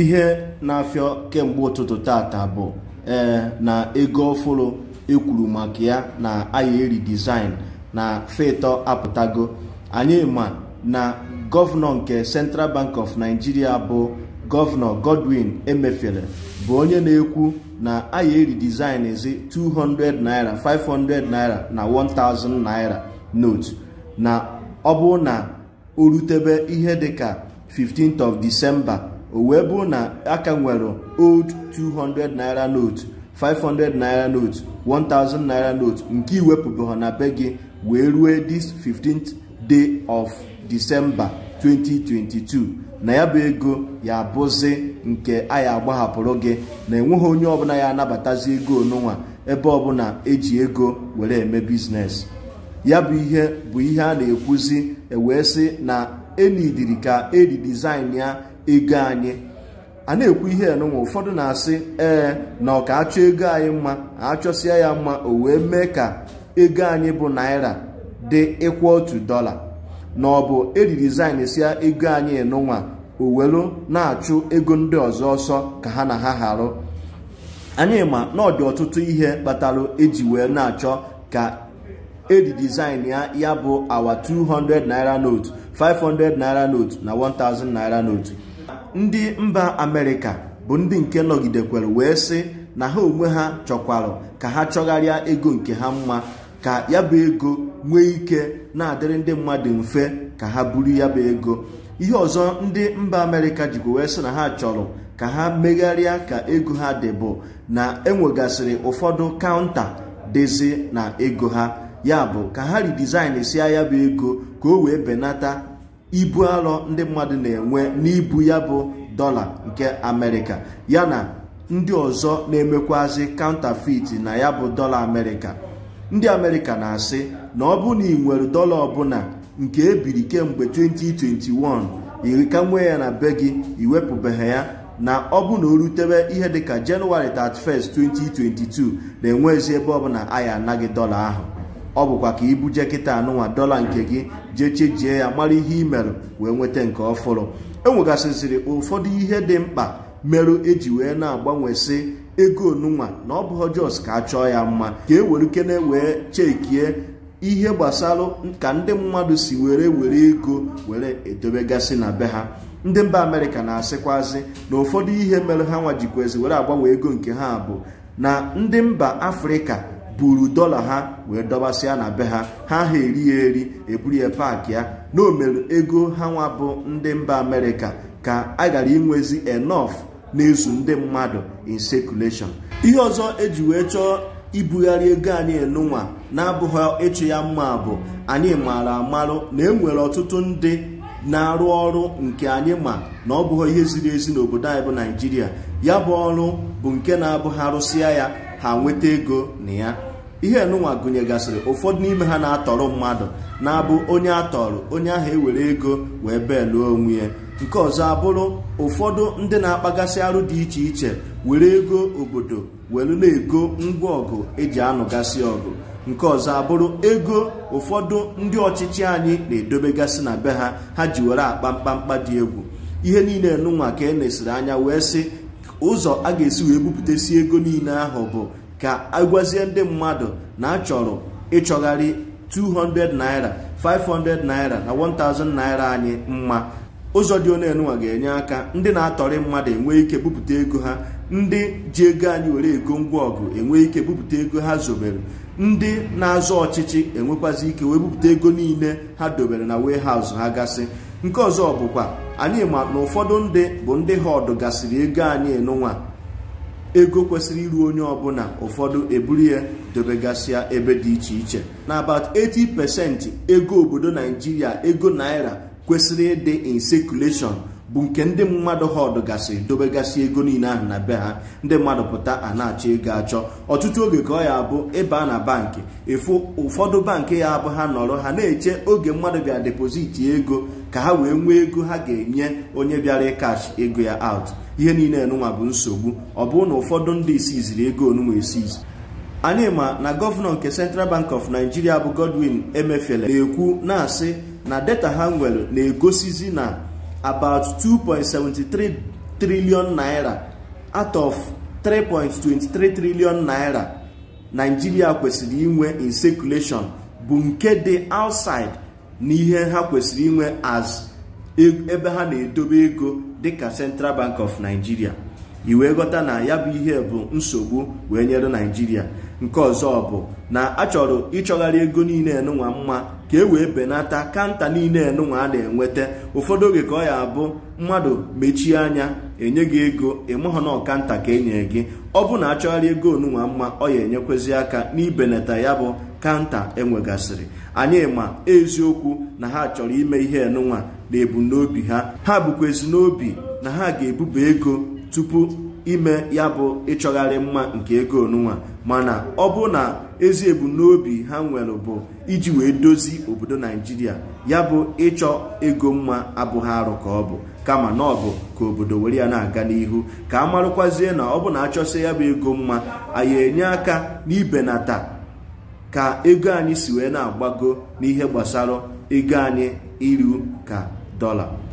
ihe na-afịọ kemgbe ụtụtụ tata bụ ee na ego ọfụrụ ekwuru maka ya na ayeri e design na feto apụtago anyị ma na gọvanọ nke central bank of nigeria bụ gọvanọ godwin emefere bụ onye na-ekwu na ayeri e design ezi 200 naira 500 naira na 1000 naira note na ọ bụ na o rutebe ihe dịka 15th of december o wee bụrụ na aka nwere old 200 naira note 500 naira note 1000 naira note nke iwepụbeghị na be gị wee rue this 15th day of December 2022 na ya bụ ego ya bụzi nke anyị agbahapụrụ gị na enweghị onye ọbụla ya anabatazi ego onunwa ebe ọbụla eji ego were eme biznes ya bụ ihe bụ ihe a na-ekwuzi ewee sị na enidiri ka eri ya ego anyị a na-ekwu ihe enụnwa ụfọdụ na-asị ee na ọ ka achọ ego anyị mma achọsịa ya mma o wee mee ka ego anyị bụ naira dị ịkwụ otu dọla na ọ bụ eririzain sia ego anyị enụnwa o na-achụ ego ndị ọzọ ọsọ ka ha na ha harụ anyị ma na ọ dị ọtụtụ ihe kpatara eji wee na-achọ ka edirizain ya ya bụ awa 200 naira note 500 naira note na 1000 naira note ndị mba amerịka bụ ndị nke nọgidekwere wee sị na ha onwe ha chọkwarụ ka ha chọgharịa ego nke ha mma ka ya bụ ego nwee ike na-adịrị ndị mmadụ mfe ka ha buru ya bụ ego ihe ọzọ ndị mba amerịka jikwa wee sị na ha chọrọ ka ha megharịa ka ego ha dị bụ na enwegasịrị ụfọdụ kaụnta dịzi na ego ha ya bụ ka ha ridizin si ya bụ ego ka o wee benata ibu arọ ndị mmadụ na-enwe n'ibu ya bụ dọla nke amerịka yana ndị ọzọ na-emekwazi counterfeit na ya bụ dọla amerịka ndị amerịka na-asị na ọ bụ na ị nwere dọla ọbụla nke ebiri kemgbe 2021 iri ka nwee ya na be gị iwepụbeghị ya na ọ bụ na o rutebe ihe dịka jenụwarị 31 2022 na-enwezi ebe ọbụla anyị anaghị dọla ahụ ọ bụkwa ka ibuje kịta anụnwa dọla nke gị jee chejie ya mara ihe i merụ wee nweta nke ọfụrụ e nwegasịsịrị ụfọdụ ihe dị mkpa merụ eji wee na-agbanwesị ego onunwa na ọ bụghọ jos ka a chọọ ya mma ka e were kene wee chekie ihe gbasara ka ndị mmadụ si were were ego were edobegasị na be ha ndị mba amerịka na asịkwazi na ụfọdụ ihe mere ha nwa jikwezi were agbanwe ego nke ha bụ na ndị mba afrịka buru dọla ha wee dọbasịa na be ha ha ha eri ya eri eburu ya paakị ya na ego ha nwa bụ ndị mba amerịka ka a gara inwezi enof na-ezu ndị mmadụ in circulation ihe ọzọ eji wee chọọ ibugharị ego anyị enunwa na-abụghị ịchụ ya mma bụ anyị mara amarụ na enwere ọtụtụ ndị na-arụ ọrụ nke anyị ma na ọ bụghị ihe ziri ezi n'obodo anyị bụ naijiria ya bụ ọrụ bụ nke na-abụghị arụsịa ya ha nweta ego na ya ihe enụnwa gụnyegasịrị ụfọdụ n'ime ha na-atọrọ mmadụ na-abụ onye atọrọ onye ahụ ewere ego wee beeluo onwe ya nke ọzọ abụrụ ụfọdụ ndị na-akpagasị arụ dị iche iche were ego obodo welu na-ego ngwa ọgụ eji anụgasị ọgụ nke ọzọ abụrụ ego ụfọdụ ndị ọchịchị anyị na-edobegasị na be ha ha ji were akpa mkpamkpa dị egwu ihe niile nụnwa ka e nesiri anya wee sị ụzọ a ga-esi wee si ego niile ahụ bụ ka agwazie ndị mmadụ na achọrọ ịchọgharị 200 naira 500 naira na 1000 naira anyị mma ụzọ dị onye ga-enye aka ndị na-atọrị mmadụ enwee ike bupụta ego ha ndị ji ego anyị were ego ngwa ọgụ enwe ike bupụta ego ha zobere ndị na-azọ ọchịchị enwekwazi ike wee bupụta ego niile ha dobere na warehouse ha gasị nke ọzọ bụkwa anyị ma na ụfọdụ ndị bụ ndị ha ọdụgasịrị gasịrị ego anyị nụnwa ego kwesịrị iru onye ọbụla ụfọdụ eburu ya dobegasịa ebe dị iche iche na about 80 pasenti ego obodo naijiria ego naira kwesịrị ịdị in circulation bụ nke ndị mmadụ họdụ gasịrị dobegasị ego niile ahụ na be ha ndị mmadụ pụta a na-achọ ego achọ ọtụtụ oge ka ọ ya abụ ịba na bankị efu ụfọdụ bankị ya abụ ha nọrọ ha na-eche oge mmadụ bịa depoziti ego ka ha wee nwee ego ha ga-enye onye bịara ịkash ego ya out ihe niile enunwa bụ nsogbu ọ na ụfọdụ ndị isiziri ego onunwa esizi anyị ma na gọvanọ nke Central Bank of Nigeria bụ Godwin Emefiele na-ekwu na-asị na data ha nwere na-egosizi na about 2.73 trillion naira out of 3.23 trillion naira Nigeria kwesịrị inwe in circulation bụ nke dị outside na ihe ha kwesịrị inwe as e, ebe ha na-edobe ego dịka Central Bank of Nigeria iwee ghọta na ya bụ ihe bụ nsogbu wee nyere Nigeria nke ọzọ bụ na achọrọ ịchọgharị ego niile nụnwa mma ka e wee benata kanta niile enunwa a na-enweta ụfọdụ oge ka ọ ya abụ mmadụ mechie anya enye gị ego ịmụghọ na ọkanta ka enye gị ọ bụ na achọgharị ego onunwa mma ọ ya enyekwezi aka n'ibenata ya bụ kanta enwegasịrị anyị ma eziokwu na ha chọrọ ime ihe enunwa na ha ha bụkwa ezinobi na ha ga-ebuba ego tupu ime ya bụ ịchọgharị mma nke ego onunwa mana ọ bụ na ezi n'obi ha nwere bụ iji wee dozi obodo naijiria ya bụ ịchọ ego mma abụghị arụ ka ọ bụ kama na ọ bụ ka obodo were ya na-aga n'ihu ka a marụkwazie na ọ bụ na achọsị ya bụ ego mma anyị enye aka n'ibenata ka ego anyị si wee na-agbago n'ihe gbasara ego anyị iru ka dọla